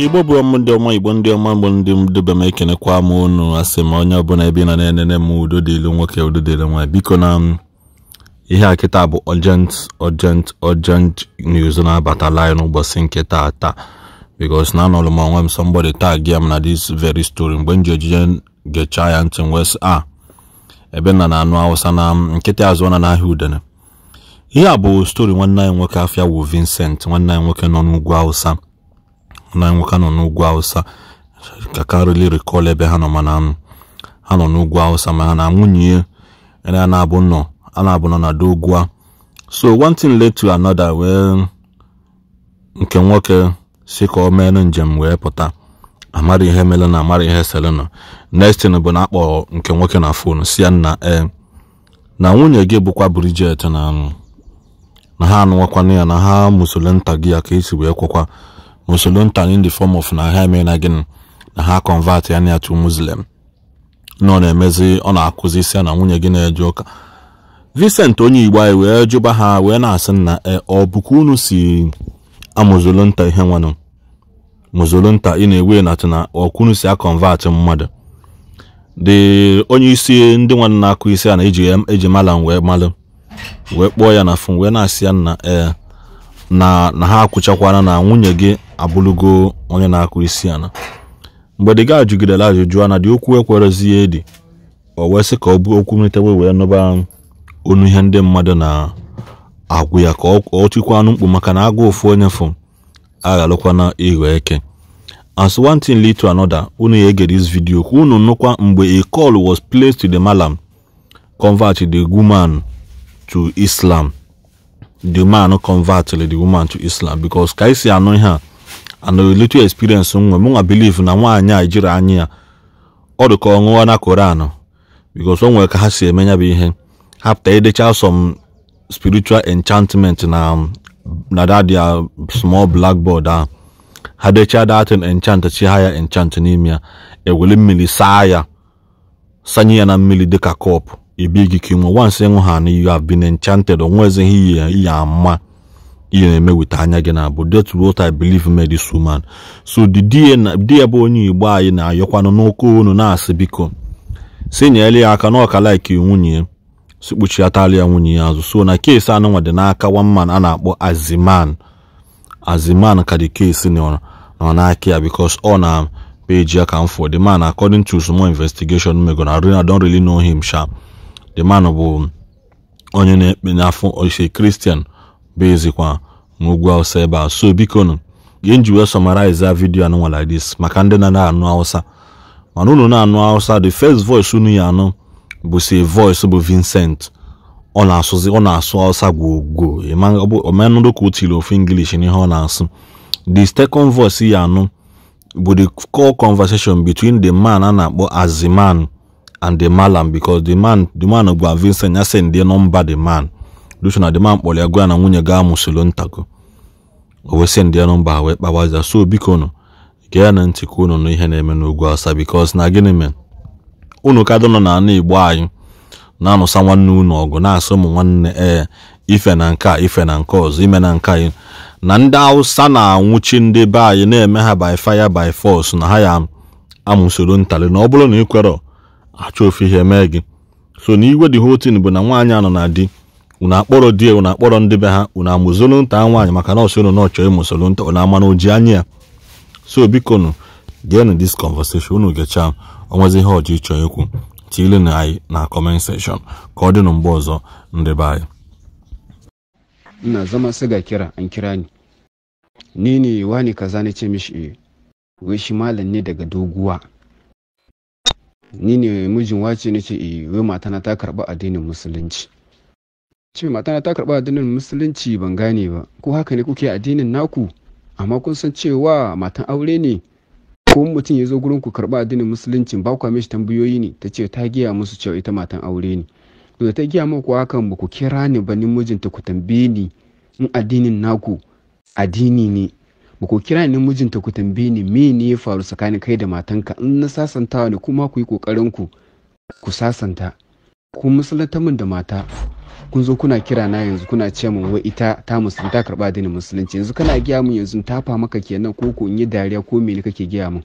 igbo bụ ọmụ ndị ọma igbo ndị ọma mgbe ndị mdụbe m ekenekwa m unu asị m onye ọbụla ebe na na-enene m udo dịlu nwoke udo dịlu nwaanyị biko na ihe a kịta bụ ojent urgent urgent news na-abata line n'ụbọchị nke taa taa na anọlụ m onwe m somebody tag ya m na dis very story mgbe m ji ejije gechaa ya ntị wes a ah, ebe nna na anụ awụsa na nkịtị azụ na n'ahịa udene ihe a bụ story nwanne anyị nwoke afia wu Vincent nwanne anyị nwoke nọ n'ugwu awụsa na nwoke nọ n'ugwu awụsa ka karịli rikọl ebe ha nọ mana ha nọ n'ugwu awụsa ma ha na nwunye ya na-abụ nọ a na-abụ nọ na dogwa so one thing led to another wee nke nwoke si ka o mere njem wee pụta amara ihe mere na amara ihe selena next bụ na akpọrọ nke nwoke na fon si ya na e eh, na nwunye gị bụkwa Bridget na na ha anụwakwana ya na ha musole nta gị ya ka esi wee kwakwa musuluntan in the form of na ha emee na gịnị na ha convert ya na to muslim na ọ na-emezi ọ na-akụzi isi na nwunye gị na-eje ụka Vincent onye Igbo anyị wee jụba ha wee na-asị na ọ bụkwa unu si nta ihe nwanụ nta ị na-ewe na tụna ọkwunu si akọnvatị mmadụ dị onye isi ndị nwanne na-akụ isi a na eji mala wee malụ wee kpọọ ya na fon wee na-asị ya na ee na na ha akwụchakwana na nwunye gị abụlugo onye na-akụ isi ana. mgbe di ga jụgidere ajụjụ ana dị okwu ekwerezighị edi o wee sị ka ọ bụ okwu mlitewe wee nụba onu ihe ndị mmadụ na-agwụ ya ka ọ chịkwa anụ mkpu maka na agụ ofu onye fụ aghalụkwana ịghọ eke as one thing lead to another unu ya ege this video ka unu nụkwa mgbe a call was placed to the malam convert the woman to Islam the man converted the woman to islam because ka isi anụ ihe a anụ little experience nwa m nwa believe na nwaanyị a jiri anya ya ọ dị ka ọ ṅụọ na koran because o nwere ka ha si eme ya bụ ihe hapụta edecha some spiritual enchantment na na that their small blackboard ahụ ha dechaa datin enchant chi ha ya enchant n'ime ya ewere mmiri saa ya sanye ya na mmiri dịka kọpụ e big king once ịṅụ ha na you have been enchanted onwezi ihe ihe ama ihe na-eme weta anya gị na abụ that what I believe made this so di die bụ onye igbo anyị na-ayọkwanụ n'ụkọ unu na-asị biko si nyere ya aka na ọka like nwunye si kpuchiatala ya nwunye ya azụ so na keesi anụnwa dị n'aka man a na-akpọ aziman aziman ka dị keesi nọ n'aka ya because ọ na peji ya ka m fọ the man according to small investigation megona I don really know him sharp the man bụ onye na-ekpe n'afọ ofesi kristian bụ ezikwa n'ugwu awụsa ebe a so bikonu ihe nji wee summarize vidiyo anụnwa like dis maka ndị na anụ awụsa. mana unu na-anụ awụsa the first voice unu ya anụ bụ si voice bụ vincent ọ na-asụzi ọ na-asụ hausa gwogwo omenụrụ ka o ofu english n'ihe ọ na-asụ the second voice ya anụ bụ the call conversation between the man a na-akpọ aziman and the malam because the man the man gwa Vincent ya say ndị nọmba the man duchu na the man kpọrọ ya gwa na nwunye ga amụsolo ntago o wee sị ndị nọmba wee kpawazia so biko nụ gee na ntị ka unu nụ ihe na-eme n'ugwu asa because na gịnị mere unu ka nọ na ana Igbo anyị na-anụsa nwanne unu ọgụ na-asụ ụmụ nwanne ee eh, ife na nke a ife na nke ọzọ ime na nke anyị na ndị Awụsa na-anwụchi ndị be anyị na-eme ha by fire by force na ha ya amụsoro ntali na ọ bụrụ na ị kwere. achọ ofe ihe mee gị so na iwe dị hotin bụ na nwaanyị anọ na di unu akpọrọ di unu akpọrọ ndị be ha unu amụzolu nta nwaanyị maka nọọsụ unu na ọchọ ịmụsolu nta unu ama na oji anya ya so biko nụ geenụ dis conversation unu gechaa onwezi ihe ọjọ ịchọ ikwu tiile na anyị na comment section ka ọ dị nụ mgbe ọzọ ndị be anyị ina zama sai ga kira an anyị ni ni ne wani kaza na ce mishi wai shi malam ne daga doguwa ni ne mijin wace ne ce eh matana ta karba addinin musulunci ce matana ta karba addinin musulunci ban gane ba ko haka ne kuke addinin naku amma kun san cewa matan aure ne ko mutum ya zo gurin ku karba addinin musulunci ba kwa mishi tambayoyi ne ta ce ta giya musu cewa ita matan aure ne to da ta giya muku hakan ba ku kira ni ba ni mijinta ku tambaye ni in addinin naku addini ne ba ku kira ni mijinta ku tambaye ni me ne ya faru tsakanin kai da matanka in na sasantawa ne kuma ku yi kokarin ku ku sasanta ku musulunta min da mata kun zo kuna kira na yanzu kuna ce min wai ita ta musulunta karba dini musulunci yanzu kana giya min yanzu tafa maka kenan ko ko in yi dariya ko me ne kake giya min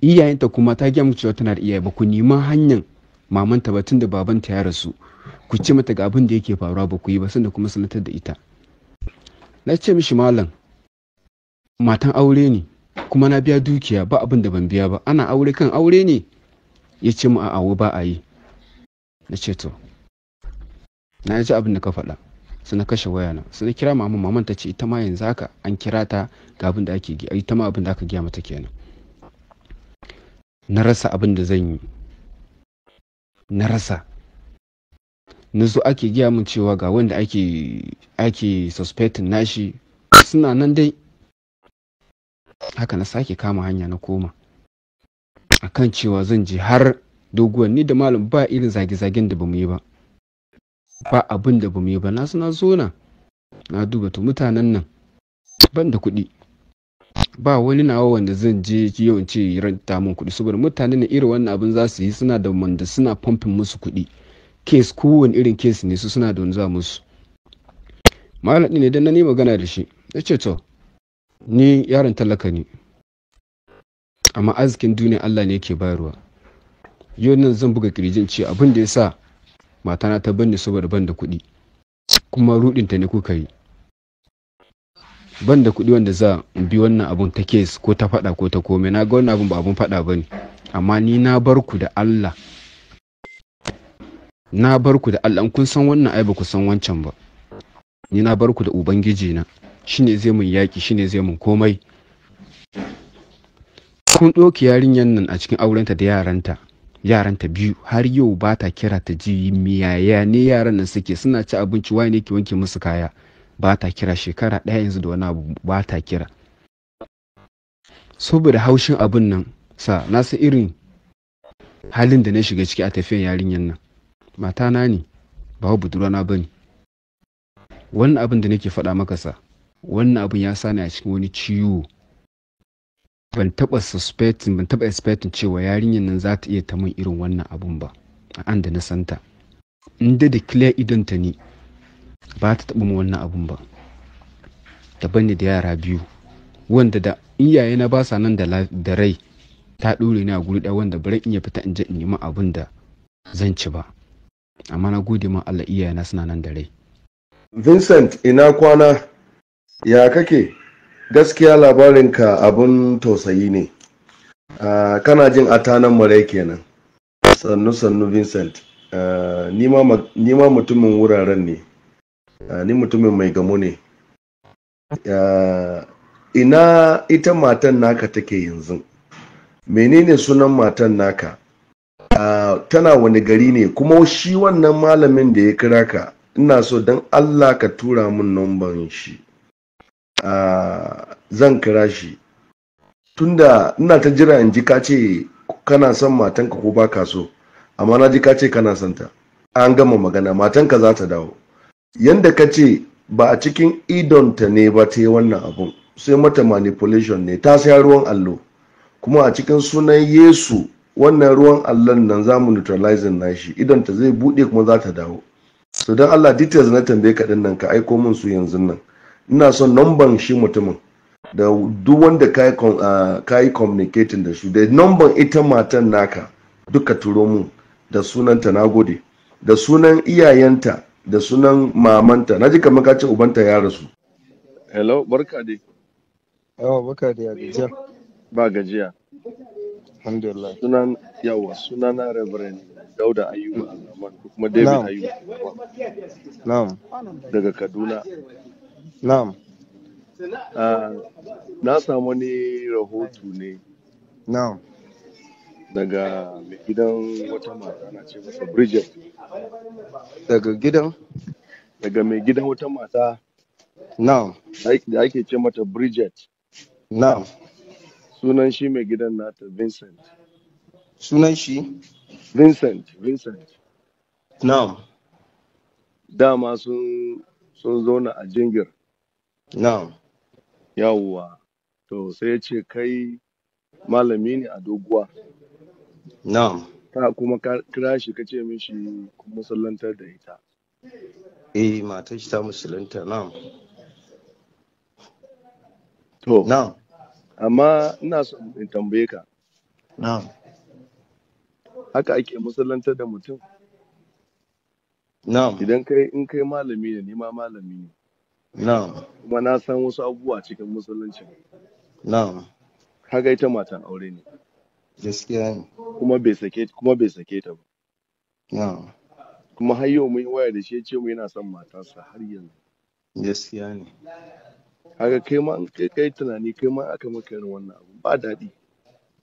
iyayenta kuma ta giya min cewa tana da iyaye ba ku nima hanyar mamanta ba tun da babanta ya rasu ku ce mata ga abin da yake faruwa ba ku yi ba sanda kuma sanatar da ita na ce mishi malam matan aure ne kuma na biya dukiya ba abin da ban biya ba ana aure kan aure ne ya ce mu awo ba a yi na ce to na ji abin da ka faɗa su na kashe wayana su na kira maman maman ta ce ita ma yanzu haka an kira ta ga abin da ake ita ma abin da aka giya mata kenan na rasa abin da zan yi na rasa na zo ake giya min cewa ga wanda ake ake suspecting nashi suna nan dai haka na sake kama hanya na koma A kan cewa zan je har doguwar ni da malam ba irin zage-zagen da bamu yi ba ba abin da bamu yi ba na suna zona na duba to mutanen nan ban da kuɗi ba wani nawa wanda zan je yawan ce ranta min kuɗi saboda mutane ne irin wannan abin za su yi suna da wanda suna pumping musu kuɗi kes kowane irin kes ne su suna da wani za musu malam ne dan na ni magana da shi ya ce to ni yaron talaka ne amma arzikin duniya allah ne yake bayarwa yau nan zan buga kirjin ce abin da ya sa matana ta banne saboda ban da kuɗi kuma ruɗinta ne kuka yi ban da kuɗi wanda za bi wannan abun ta kes ko ta faɗa ko ta komai na ga wannan abun ba abun faɗa ba ne amma ni na bar ku da allah na bar ku da allah kun san wannan ai ba ku san wancan ba ni na bar ku da ubangiji na shine zai mun yaƙi shine zai mun komai kun ɗauki yarinyar nan a cikin aurenta da yaranta yaranta biyu har yau ba ta kira ta ji miyaya ne yaran nan suke suna ci abinci wani ke wanke musu kaya ba ta kira shekara ɗaya yanzu da wani abu ba ta kira saboda haushin abin nan sa na san irin halin da na shiga ciki a tafiyan yarinyar nan matana ne ba budurwana ba ne wannan abin da nake faɗa maka sa wannan abin ya sani a cikin wani ciwo ban taba suspecting ban taba expecting cewa yarinyar nan za ta iya ta min irin wannan abun ba a an da na santa in da da clear ta ne ba ta taba min wannan abun ba daban ne da yara biyu wanda da iyaye na ba sa nan da rai ta ɗore ni a guri ɗaya wanda bari in ya fita in je in nemi abin da zan ci ba amma na gode ma Allah iyaye na suna nan da rai Vincent ina kwana ya kake gaskiya labarinka abin tausayi ne uh, kana jin atanan marai kenan sannu sannu vincent uh, ma mutumin wuraren ne ni mutumin mai gamo ne ina ita matan naka take yanzu menene sunan matan naka tana wani gari ne kuma shi wannan malamin da ya kira ka ina so don allah ka tura mun numban shi zan kira shi tunda ina ta jira in ji ka ce kana son matanka ko ba ka so amma na ji ka ce kana son ta an gama magana matanka za ta dawo yanda ka ce ba a cikin idonta ne ba ta yi wannan abun sai mata manipulation ne ta sai ruwan allo kuma a cikin sunan yesu wannan ruwan allon nan za mu neutralizing nashi idonta zai buɗe kuma za ta dawo so don allah details na tambaye ka nan ka aiko min su yanzu nan ina son numban shi mutumin da duk wanda ka yi ah, communicating da su da numban ita matan naka duka turo mun da sunanta na gode da sunan iyayenta da sunan mamanta na ji kamar ka ce ubanta ya rasu hello barka dai yawa barka dai a gajiya ba gajiya alhamdulillah sunan yawa sunana reverend dauda ayuba kuma david ayuba na'am daga kaduna Na'am. Ah, na samu wani rahoto ne Na'am. daga gidan wata mata na ce masa Bridget. Daga gidan? Daga mai gidan wata mata Na'am. da ake ce mata Bridget. Na'am. Sunan shi mai gidan nata Vincent. Sunan shi? Vincent, Vincent. Na'am. Dama sun sun zauna a jingir. Na'am. Yawwa. To sai ya ce kai malami ne a doguwa. Na'am. Ka kuma ka kira shi ka ce mishi musuluntar da ita. Eh matar shi ta musulunta na'am. To. Na'am. Amma ina so in tambaye ka. Na'am. Haka ake musuluntar da mutum. Na'am. Idan kai in kai malami ne ni ma malami ne. na'am kuma na san wasu abubuwa cikin musulunci na'am kaga ita matan aure ne gaskiya ne kuma bai sake kuma bai sake ta ba na'am kuma har yau mun waya da shi ya ce mu yana son matarsa har yanzu gaskiya ne kaga kai ma in kai kai tunani kai ma aka maka irin wannan abu ba daɗi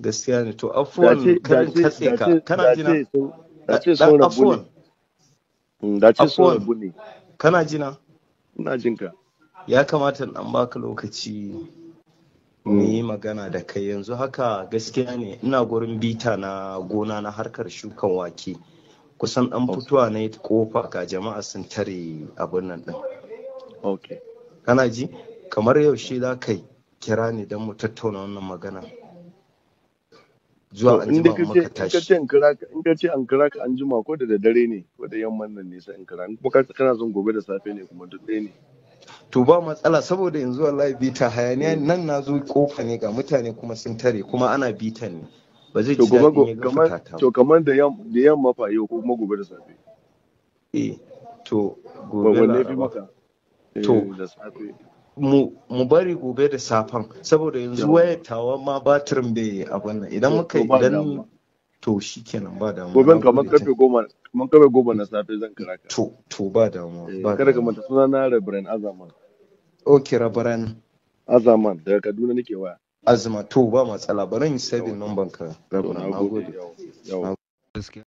gaskiya ne to afuwan karin katse ka kana jina da ce sun mm, rabu ne kana jina ina jin ka ya kamata an baka lokaci mu yi magana da kai yanzu haka gaskiya ne ina gurin bita na gona na harkar shukan wake kusan an fitowa na kofa ga jama'a sun tare abin nan din kana ji kamar yaushe za ka kira ne don mu tattauna wannan magana zuwa an jima maka tashi in ka ce an kira ka an jima ko da dare ne ko da yamman nan ne sai in kira kuma ka kana son gobe da safe ne kuma duk ɗaya ne to ba matsala saboda yanzu wallahi bita hayaniya mm. nan na zo kofa ne ga mutane kuma sun tare kuma ana bitan ne ba zai ci daɗin ya to kamar da yamma fa yau ko kuma gobe da safe eh to gobe na to eh, da safe mu bari gobe da safan, saboda yanzu waya tawa ma batirin bai abin nan idan muka idan to shi kenan ba damuwa gobe mun karfe goma kamar karfe goma na safe zan kira ka to to ba damuwa eh, ba kada ka manta suna na Reverend Azaman okay Reverend Azaman daga Kaduna nake waya azma to ba matsala bari in save number ka Reverend nagode